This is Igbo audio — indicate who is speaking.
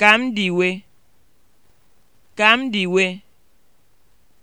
Speaker 1: Ka m dị iwe. Ka m dị iwe.